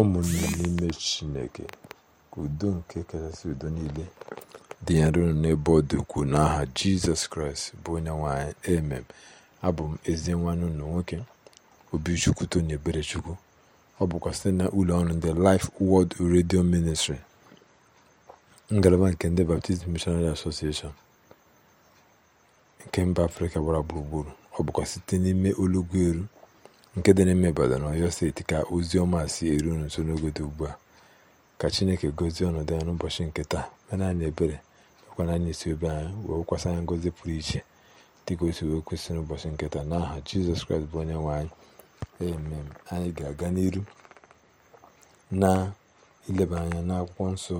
ụmụnne n'ime chineke ka udo nke kachasị udo niile dị ya nro n'ebe ọ dị ukwuu n'aha jizọs kraịst bụ onye nwanyị emem abụ m ezi nwanne ụlọ nwoke obichukwu tony eberechukwu ọ bụkwa site na ụlọ ọrụ ndị Life Word redio Ministry ngalaba nke ndị baptizim mishonari Association nke mba afrịka gbara gburugburu ọ bụkwa site n'ime olugbu eru nke dị n'ime Ibadan na Ọyọ steeti ka ozi ọma si eru nso n'oge dị ugbu a ka Chineke gozie ọnọdụ ya n'ụbọchị nke taa mere anyị ebere mekwana anyị isi obe anyị wee kwasa anyị ngozi pụrụ iche dịka o wee kwesị n'ụbọchị nke taa aha Jizọs Kraịst bụ onye nwe anyị emem anyị ga-aga n'iru na ileba anya n'akwụkwọ nsọ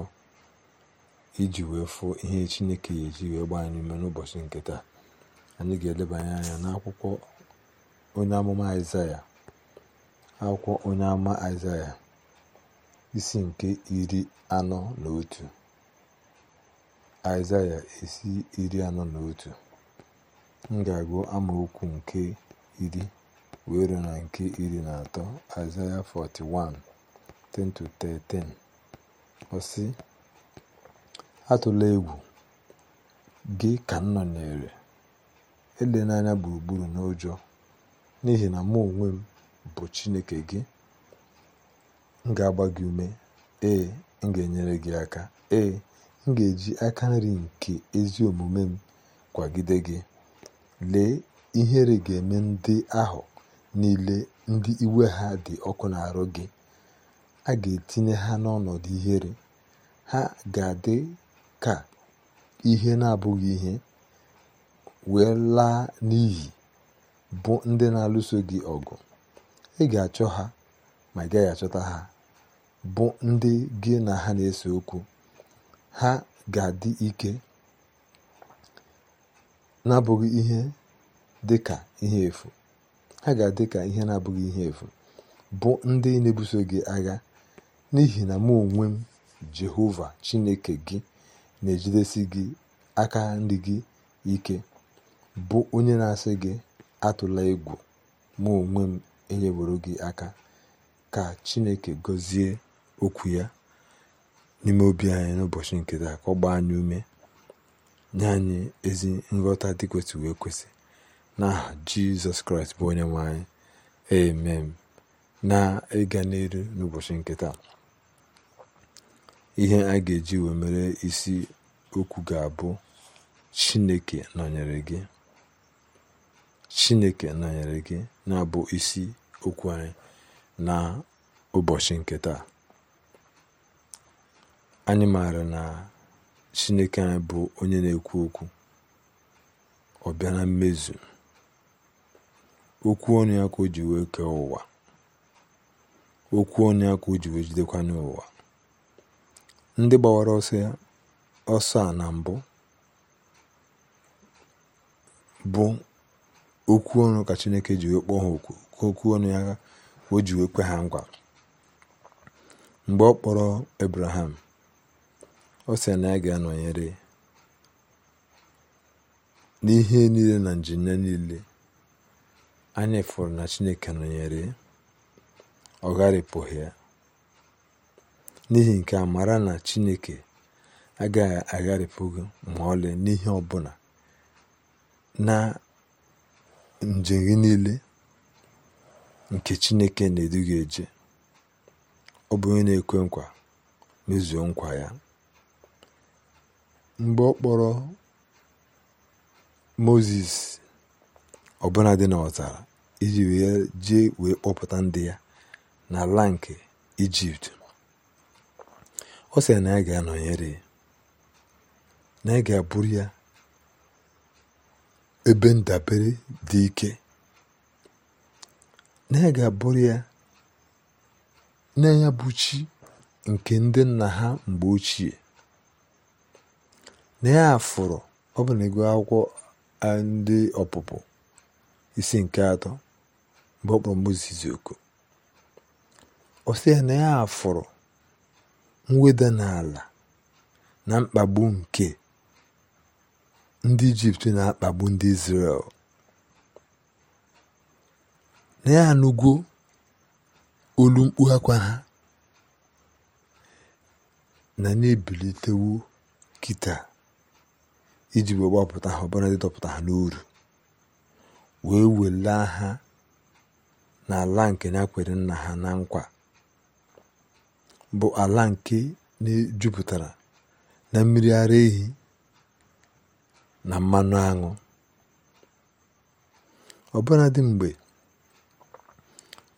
iji wee fụọ ihe Chineke ya eji wee gbaa anyị ume n'ụbọchị nke taa anyị ga-elebanye anya n'akwụkwọ onye amụma aịzaya akwụkwọ onye amụma aịzaya isi nke iri anọ na otu aịzaya isi iri anọ na otu m ga-agụ amaokwu nke iri wee na nke iri na atọ aịzaya 41 10-13 Ọsị sị atụla egwu gị ka m nọnyere ele n'anya gburugburu n'ụjọ n'ihi na mụ onwe m bụ Chineke gị m ga-agba gị ume ee m ga-enyere gị aka ee m ga-eji aka nri nke ezi omume m kwagide gị lee ihere ga-eme ndị ahụ niile ndị iwe ha dị ọkụ na-arụ gị a ga-etinye ha n'ọnọdụ ihere ha ga-adị ka ihe na-abụghị ihe wee laa n'iyi bụ ndị na-alụso gị ọgụ ị ga-achọ ha ma ị gaghị achọta ha bụ ndị gị na ha na-ese okwu ha ga-adị ike na-abụghị ihe dị ka ihe efu ha ga-adị ka ihe na-abụghị ihe efu bụ ndị na-ebuso gị agha n'ihi na mụ onwe m Jehova Chineke gị na-ejidesi gị aka nri gị ike bụ onye na-asị gị atụla egwu mụ onwe m enyeworo gị aka ka chineke gọzie okwu ya n'ime obi anyị n'ụbọchị nke ka ọ gbaa anyị ume nye anyị ezi nghọta dị kwesịrị ekwesị n'aha jizọs kraịst bụ onye nwe anyị amen na ịga n'elu n'ụbọchị nke ihe a ga-eji wee mere isi okwu ga-abụ chineke nọnyere gị chineke nọnyere gị na-abụ isi okwu anyị na ụbọchị nke taa anyị maara na chineke anyị bụ onye na-ekwu okwu ọ bịa na mmezu okwu onye ya ka o ji wee kee ụwa okwu onye ya ka o ji wee jidekwa n'ụwa ndị gbawara ya ọsọ a na mbụ bụ okwu ọnụ ka chineke ji wee kpọọ ha okwu ka okwu ọnụ ya ka o ji wee kwe ha nkwa mgbe ọ kpọrọ abraham ọ sị na ya ga-anọnyere n'ihe niile na njem niile anyị fụrụ na chineke nọnyere ọ ya n'ihi nke a mara na chineke agaghị agharịpụghị ma ọlị n'ihe ọbụla na njem gị niile nke chineke na-edu gị eje ọ bụ onye na-ekwe nkwa mezuo nkwa ya mgbe ọ kpọrọ moses ọbụla dị n'ọzara iji wee jee wee kpọpụta ndị ya na n'ala nke ijipt ọ sịrị na ya ga-anọnyere na ya ga-abụrụ ya ebe ndabere dị ike na ya bụrụ ya na bụ nke ndị nna ha mgbe ochie na ya afụrụ ọ bụ na akwụkwọ ndị ọpụpụ isi nke atọ mgbe ọ kpọrọ oku ọ sị ya na ya afụrụ mweda n'ala na mkpagbu nke ndị ijipt na-akpagbu ndị izrel na ya anụgo olu mkpu akwa ha na na-ebilitewo kịta iji wee gbapụta ha ọbara ndị dọpụta ha n'uru wee welaa ha n'ala nke na-akwere nna ha na nkwa bụ ala nke na-ejupụtara na mmiri ara ehi na mmanụ aṅụ dị mgbe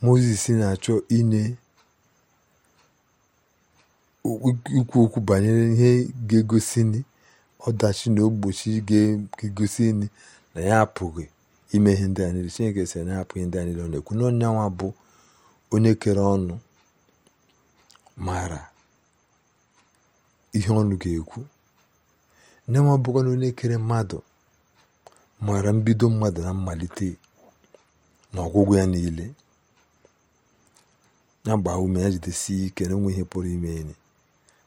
moses na-achọ inye ikwu okwu banyere ihe ga-egosi ọdachi na ogbochi ga-egosi na ya apụghị ime ihe ndị a chineke sị na ya apụghị ndị a ọ na-ekwu bụ onye kere ọnụ maara ihe ọnụ ga-ekwu nne bụkwa na onye kere mmadụ maara mbido mmadụ na mmalite na ọgwụgwụ ya niile ya gbaa ume ya jidesie ike na enwe ihe pụrụ ime enyi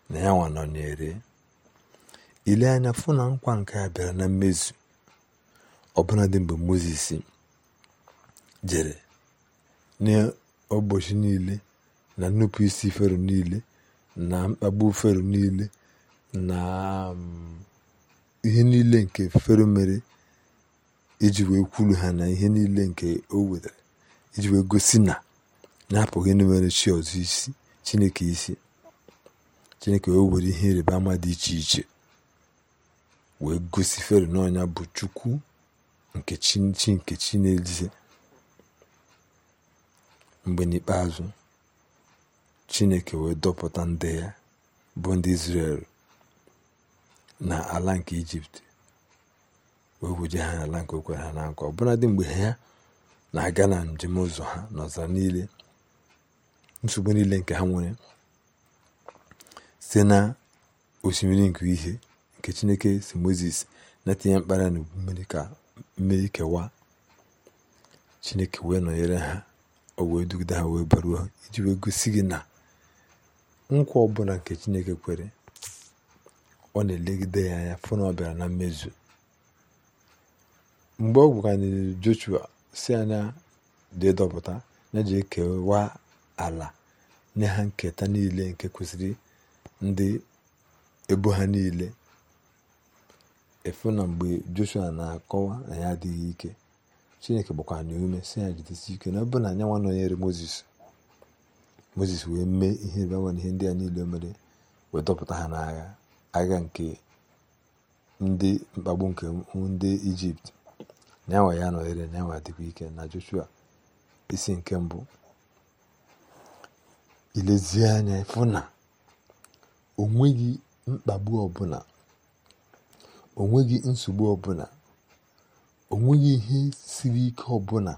na ya nwa ere ile anya fụ na nkwa nke a bịara na mmezu dị mgbe moses jere n'ụbọchị niile na nnupụ isi fero niile na mkpagbu fero niile na um, ihe niile nke fero mere iji wee kwulu ha na ihe niile nke o wetara iji wee gosi na na-apụghị ịnụmere chi ọzọ isi chineke isi chineke o were ihe ịrịba ama dị iche iche wee gosi fero n'ọnya bụ chukwu nke chi nke chi n'ezie mgbe n'ikpeazụ chineke wee dọpụta ndị ya bụ ndị Izrel na ala nke ijipt wee wuje ha n'ala nke o kwere ha na nkwa dị mgbe ha na-aga na njem ụzọ ha n'ọzara niile nsogbu niile nke ha nwere site na osimiri nke ihe nke chineke si moses na-etinye mkpara na mmiri ka mmiri kewa chineke wee nọnyere ha o wee dugide ha wee baruo iji wee gosi gị na nkwa ọbụla nke chineke kwere ọ na-elegide ya anya fụ na ọ bịara na mmezu mgbe ọ gwụkanịrị joshua si anya dị dọpụta ya ji ekewa ala nye ha nketa niile nke kwesịrị ndị ebo ha niile efu na mgbe joshua na-akọwa na ya adịghị ike chineke gbakwa na ume si ya jidesi ike na ọbụ na anya nwa nọnyere Mozis mozis wee mee ihe rịbanwa na ihe ndị a niile mere wee dọpụta ha n'agha agha nke ndị mkpagbu nke ndị ijipt na enwe ya nọghere na enwe dịkwa ike na joshua isi nke mbụ ilezie anya ịfụ na onweghị mkpagbu ọbụla o nweghị nsogbu ọbụla o nweghị ihe siri ike ọbụla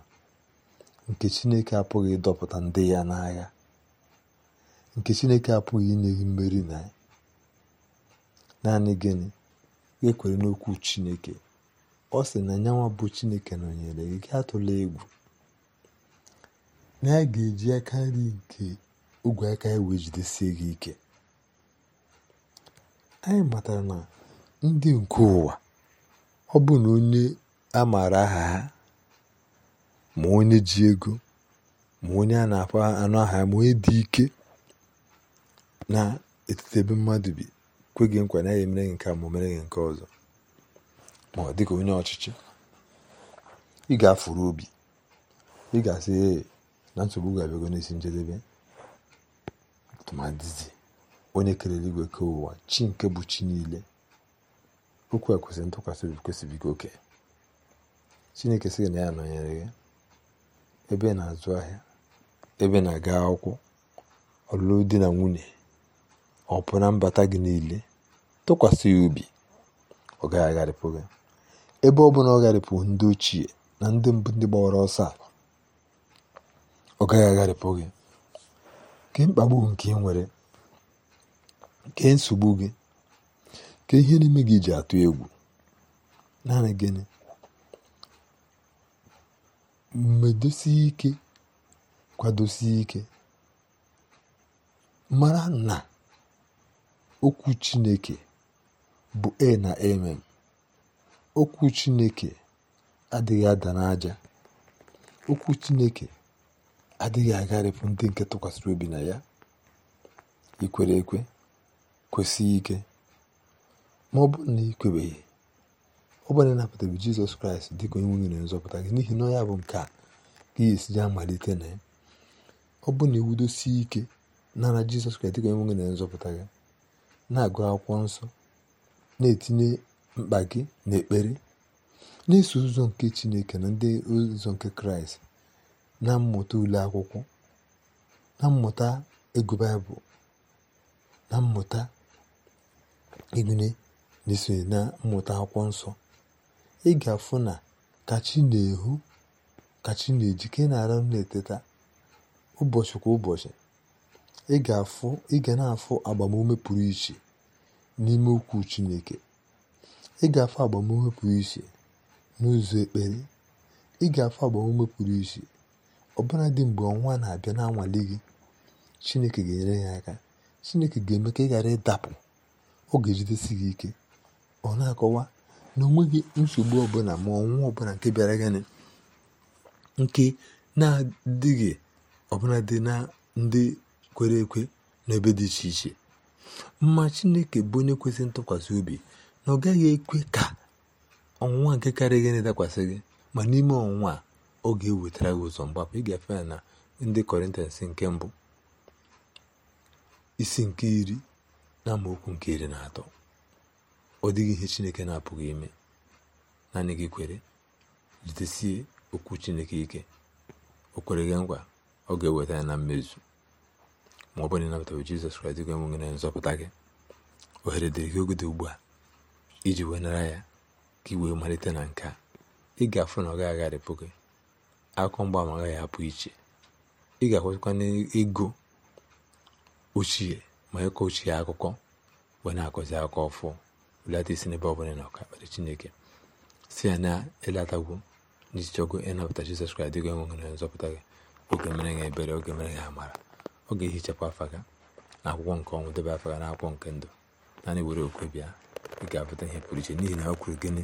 nke chineke apụghị ịdọpụta ndị ya n'agha nke chineke apụghị inye mmeri na ya naanị gịnị ekwere n'okwu chineke ọ sị na nyanwa bụ chineke nọnyere gị tụla egwu na ya ga-eji aka nri nke ogwe aka ya wee jidesie gị ike anyị matara na ndị nke ụwa ọ bụ na onye a maara aha ha ma onye ji ego ma onye a na-akpọ anụ aha ma onye dị ike na etiti ebe mmadụ bi kwe gị nkwa naghị emere gị nke a ma o mere gị nke ọzọ ma ọ dịka onye ọchịchị ị ga-afụrụ obi ị ga-asị ee na nsogbu ga-abịago n'isi njedebe tụmadịzi onye kelere igwe ke ụwa chi nke bụ chi niile okwu a kwesịrị ntụkwasị obi kwesịbigo oke chineke sị na ya nọnyere gị ebe na-azụ ahịa ebe na-aga akwụkwọ ọlụlụ di na nwunye ọ pụ na mbata gị niile tụkwasị ya obi ọ gaghị agharịpụ gị ebe ọ bụla ọ gharịpụ ndị ochie na ndị mbụ ndị gbawara ọsọ ọ gaghị agharịpụ gị ke mkpagbu nke ị nwere ke nsogbu gị ka ihe n'ime gị ji atụ egwu naanị gịnị medosie ike kwadosie ike mara na okwu Chineke bụ e na amen. Okwu Chineke adịghị ada n'aja. Okwu Chineke adịghị agharịpụ ndị nke tụkwasịrị obi na ya. Ikwere ekwe kwesị ike ma ọ bụrụ na ị kwebeghị ọ bụrụ na ịnapụtabe Jizọs Kraịst dị ka onye nwunye na nzọpụta gị n'ihi na ọ ya bụ nke a ka ya malite na ya ọ bụrụ na iwudosie ike nara Jizọs Kraịst dị ka onye nwunye na nzọpụta gị na-agụ akwụkwọ nsọ na-etinye mkpa gị n'ekpere na-eso ụzọ nke chineke na ndị ụzọ nke kraịst na mmụta ule akwụkwọ na mmụta ego baịbụl na mmụta igune na na mmụta akwụkwọ nsọ ị ga-afụ na kachi na-ehu kachi na-eji ka ị na-eteta ụbọchị kwa ụbọchị ị ga na-afụ agbamume pụrụ iche n'ime okwu Chineke ị ga afọ agbamume pụrụ iche n'ụzọ ekpere ị ga afọ agbamume pụrụ iche ọbụla dị mgbe ọnwa na-abịa na-anwale gị Chineke ga-enyere ya aka Chineke ga-eme ka ị ghara ịdapụ ọ ga gị ike ọ na-akọwa na onweghị nsogbu ọbụla ma ọnwa ọbụla nke bịara gịnị nke na-adịghị ọbụla dị na ndị kwere ekwe n'ebe dị iche iche mma chineke bụ onye kwesịrị ntụkwasị obi na ọ gaghị ekwe ka ọnwụnwa nke karịghị na-edakwasị gị ma n'ime ọnwụnwa ọ ga-ewetara gị ụzọ mgbapụ ịgafe ya na ndị kọrịntans nke mbụ isi nke iri na amaokwu nke iri na atọ ọ dịghị ihe chineke na-apụghị ime naanị gị kwere jitesie okwu chineke ike o kwere gị nkwa ọ ga-eweta ya na mmezu ma ọ bụrụ na bụ Jizọs Kraịst gị na nzọpụta gị ohere dịrị gị ogide ugbu a iji wee nara ya ka ị wee malite na nke a ị ga-afụ na ọ gaghị agharịpụ gị akụkọ mgbaama agaghị apụ iche ị ga-akwụsịkwa n'ego ochie ma ịkọ ochie akụkọ wee na-akọzi akụkọ ọfụ belata isi n'ebe ọ bụla na ọka kpere Chineke si ya na ịlatagwu n'iji chọgo ịnapụta Jizọs Kraịst gị na nzọpụta gị oge mere ya ebere oge mere ya amara ọ ga-ehichakwa afa gị na akwụkwọ nke ọnwụ debe afa gị na akwụkwọ nke ndụ naanị were okwe bịa ị ga-abụta ihe pụrụ iche n'ihi na ọ kwuru gịnị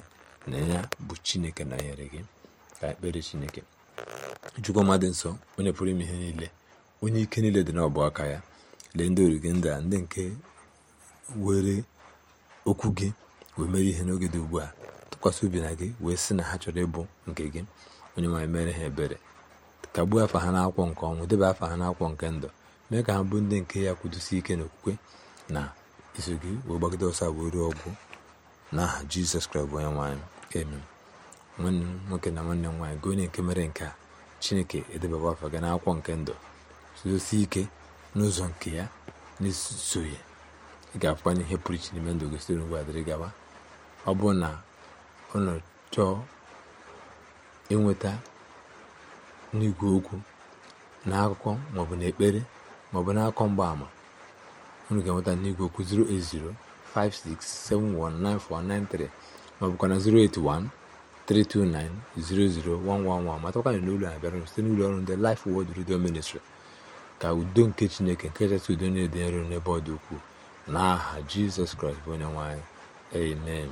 na ya bụ chineke na nyere gị ka ekpere chineke chukwu ọma dị nsọ onye pụrụ ime ihe niile onye ike niile dị n'ọbụ aka ya lee ndị orige ndị a ndị nke were okwu gị wee mere ihe n'oge dị ugbu a tụkwasị obi na gị wee sị na ha chọrọ ịbụ nke gị onye nwaanyị mere ha ebere kagbuo afa ha n'akwụkwọ nke ọnwụ debe afa ha n'akwụkwọ nke ndụ mee ka ha bụ ndị nke ya kwudosi ike n'okwukwe na iso gị wee gbagide ọsọ wee ruo ọgwụ n'aha jizọs kraịst bụ onye nwaanyị amen nwanne m nwoke na nwanne nwaanyị gị onye nke mere nke a chineke edebaba afa gị n'akwụkwọ nke ndụ sodosi ike n'ụzọ nke ya na ya ị ga-afụkwanye ihe pụrụ iche n'ime ndụ gị site n'ugwu adịrị gaba ọ bụrụ na ụlọ chọọ inweta n'igwe okwu na akụkọ maọbụ na ekpere maọbụ n'akọ mgbaama unu ga-enweta n'igwe okwu 08056719493 maọbụkwa na 08132900111 matakwa na n'ụlọ a bịara site n'ụlọ ọrụ ndị Life wod Radio ministri ka udo nke chineke nke kachasị udo na-ede nro n'ebe ọ dị ukwuu n'aha jizọs kraịst bụ onye nwaanyị anyị amen